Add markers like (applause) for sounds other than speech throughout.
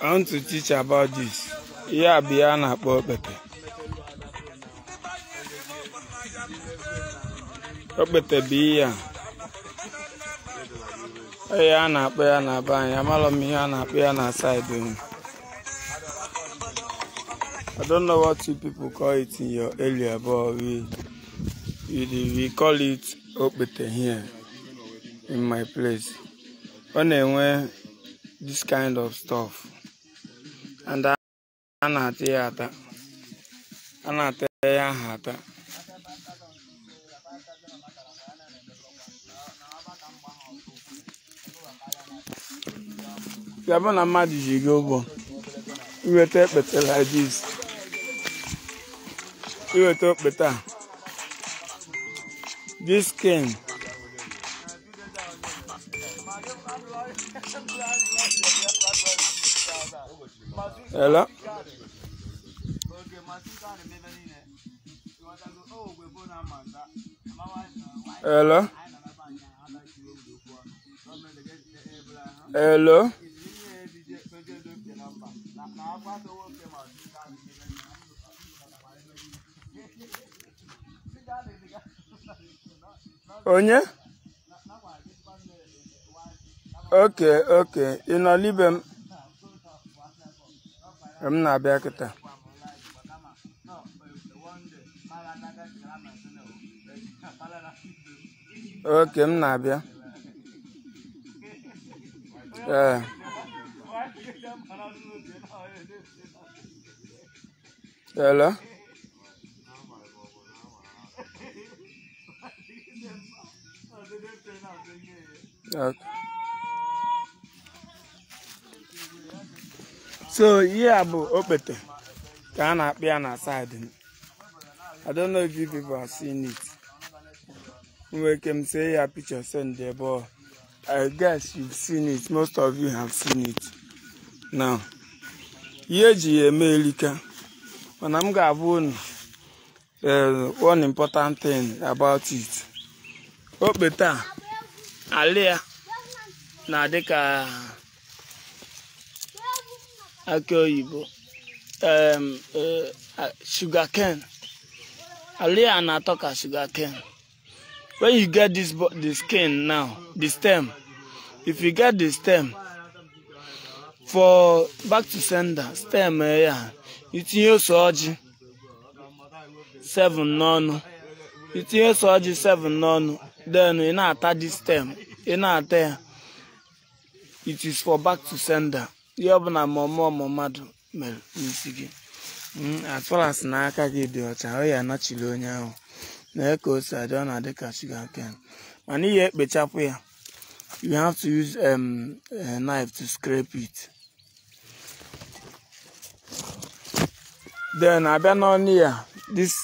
I want to teach about this. Ihe a bụ ihe na-akpọ okpete. Okpete bụ ihe a. Ihe a na-akpọ ya na be anyị, amalọ m ihe a na-akpọ ya na saịdị I don't know what you people call it in your area, but we, we, we call it okpete here in my place ọ na-enwe this kind of stuff and a na-ata ya ata a na-ata ya aha ata ya bụ na mmadụ ji gị ụgwọ iweta ekpete like this iweta okpete a this can. Hello. Hello. Hello. onye oke oke ị nọlibe m m na-abịa kịta oke m na-abịa ee eh. hello Uh, so ihe a bụ okpete ka a na-akpị ya na I don't know if you people have seen it nwere ike m say ya picture send there but I guess you've seen it most of you have seen it now ihe eji ya eme elika mana m ga-abụ unu eh, one important thing about it okpete a ala ya na-adị ka akị oyibo sugarcane ala ya na-atọ ka sugarcane when you get this the skin now the stem if you get the stem for back to sender stem e ya itinye ose ọjị seven n'ọnụ itinye ose ọjị seven n'ọnụ then ị na-ata dị stem ị na-ata ya it is for back to sender ihe ọ na momo ọmụọ ma mere n'isi gị as far as aka gi di ọcha o ya chile onye ahụ na eke ose adị ọ na-adị ka shuga ken mana ihe ekpechapụ ya you have to use um, a eh, knife to scrape it then abịa n'ọnụ ya this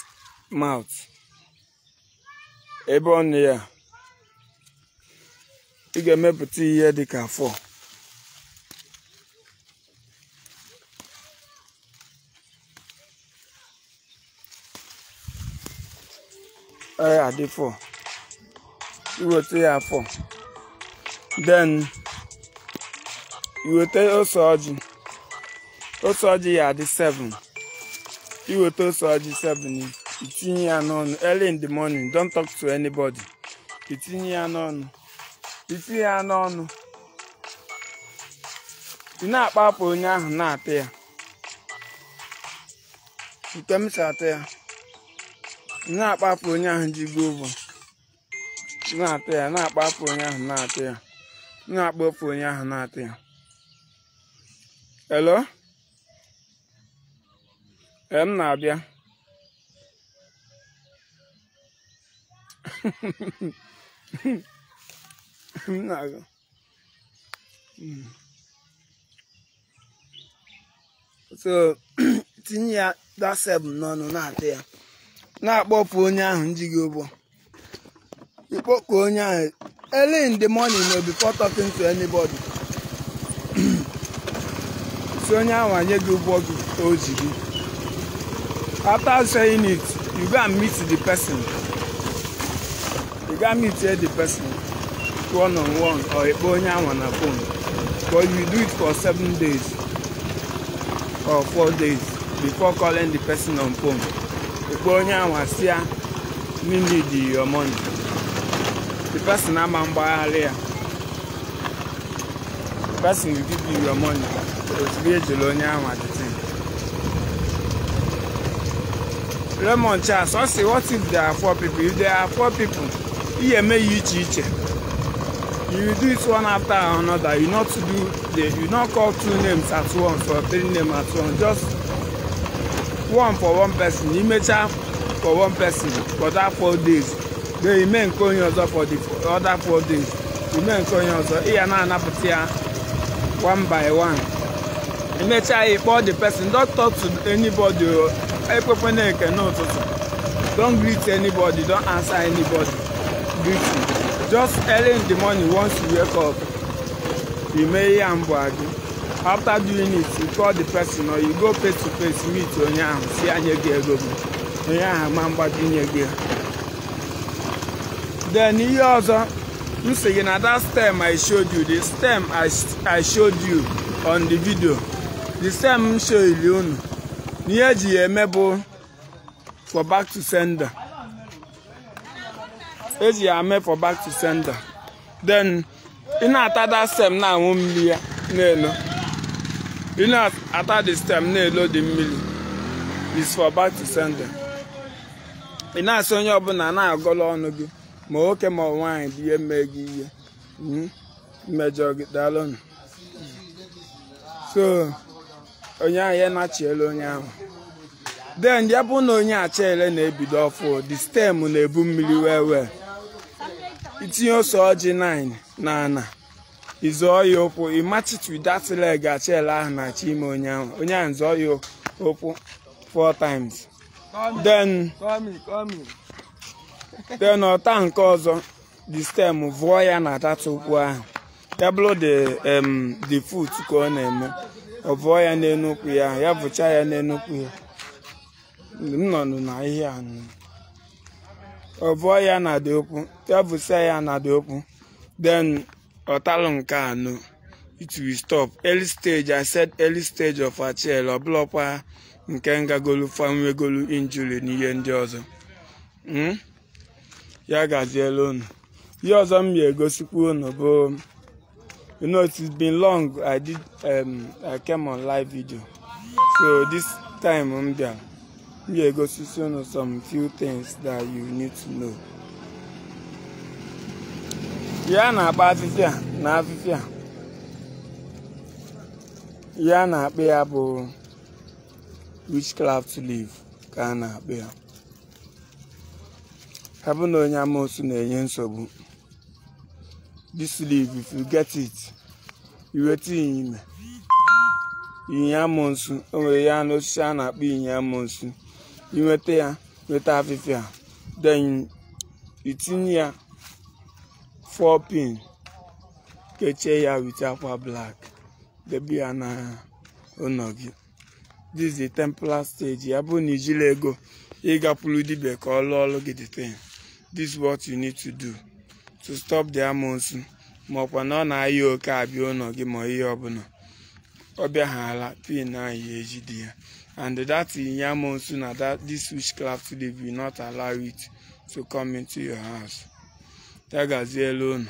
mouth ebe ọnụ ya ị ga-emepụta ihe dị ka afọ ee adị fọ iweta ya afọ then iweta ose ọjị ose ọjị ya adị seven. iweta ose ọjị 7 itinye ya n'ọnụ early in the morning don't talk to anybody itinye ya n'ọnụ itinye ya n'ọnụ ị na-akpa onye ahụ na-ata ya nke m si ata ya ị na-akpa onye ahụ ji gbuo ụbọ na-ata ya na-akpa onye ahụ na atị ya na-akpọpụ onye ahụ na atị ya elo m na-abịa (laughs) Nada. so (clears throat) tinye ya daseb n'ọnụ na atị ya na-akpọpụ onye ahụ njighị ụgbọ ịkpọpụ onye ahụ early in the morning no before talking to anybody si (clears throat) onye ahụ anye gị ụgbọ o ji gị after saying it you go and meet the person one on one or ịkpọ onye anwa na phone but you do it for seven days or four days before calling the person on phone ịkpọ onye anwa si ya me need your money the person ama mgbagharị ya the person will give you your money ozugbo ejela onye anwa the thing Raymond Charles ọ sị what if there are four people if there are four people ihe eme ya iche iche you do it one after another you not do the you not call two names at once or three names at once just one for one person imecha for one person for that four days then ime nke onye ọzọ for the other four days ime nke you ọzọ ị ya na-anapụta ya one by one imecha ya kpọọ the person don't talk to anybody ekwekwana eke n'ụtụtụ don't greet anybody don't answer anybody greet you. Just early in the morning once you wake up, you may hear Ambuagi. After doing it, you call the person or you go face to face meet onye ahụ si anya gị ego gị. Onye ahụ ma mgbaji nye gị. Then ihe ọzọ m sị gị na that stem I showed you, the stem I, I showed you on the video, the stem m showili unu. N'ihe eji ya eme bụ for back to sender. eji ya mee for back to center. then ị na-ata da stem na anwụ mmiri ya na-elo ị na-ata the stem na-elo dị mmiri is for back to center. ị na-asị onye ọbụla na-agọla ọnụ gị ma nwoke ma nwaanyị dị ihe mee gị ihe mmejọ hmm? gị daalụnụ so onye ahụ ya nachiela onye ahụ then ya bụ na onye achaele na-ebido ọfụ the stem na-ebu mmiri wee wee itinye ose ọjị 9 na ana ịzọọ ya ụkwụ ịmachitu that leg achịela ahụ na-achọ ime onye ahụ onye ahụ zọọ ya ụkwụ four times then then ọta nke ọzọ the stem vụọ ya na data ụkwụ ahụ ya bụrụ um, the foot ka ọ na-eme ọ vụọ ya n'elu ụkwụ ya ya vụcha ya n'elu ụkwụ ya m nọ na ihe a ọvụọ ya na dị okwu tevụsa ya na dị okwu then ọtalụ nke anọ it will stop early stage i said early stage of achiel ọbụlọkwa nke ngagolu fanwegolu injury na ihe ndị ọzọ hmm? ya gaziela unu ihe ọzọ m ga-egosikwa unu bụ you know it's been long i did um, i came on live video so this time m bịara yeah, go see some some few things that you need to know. Yeah, na akpa afịfị a na afịfị a ya na be ya bụ witchcraft leaf ka a na-akpa ya ha bụ na na-enye nsogbu this leave if you get it you waiting. ime inyi amoosu o nwere ya na na-akpọ inyi amoosu inweta ya nweta afịfịa then itinye ya 4 pin kechie ya wit akwa black debe ya na ụlọ gị this is templar stage ya bụrụ na ijiri ego ịgakwuru dibia ka ọ lụọ ọrụ gị thing this is what you need to do to stop the amonsu ma ọkwa na ọ na-ayọ oke abịa ụlọ gị ma ihe ọbụla ọ ala pin ahụ eji dị ya and that yam monsoon na that this witchcraft today will not allow it to come into your house. Tell Gazi alone.